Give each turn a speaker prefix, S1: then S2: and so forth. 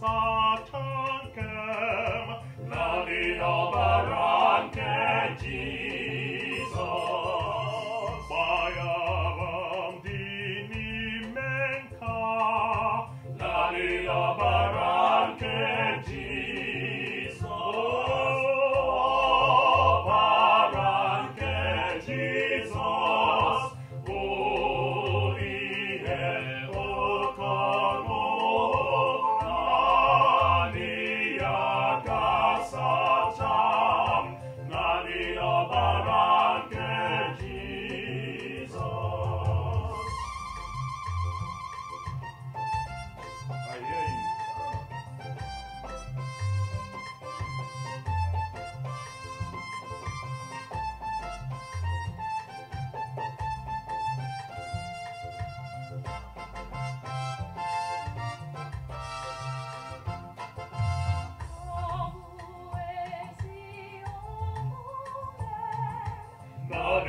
S1: satankem, lavina baranke Jesus. Bajavam dinimenka, lavina baranke Jesus. Oh, baranke Jesus.